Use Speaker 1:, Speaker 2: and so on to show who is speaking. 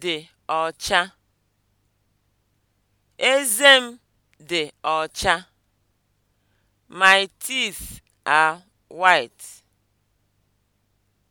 Speaker 1: dị ọcha. Eze m dị ọcha. My teeth are white.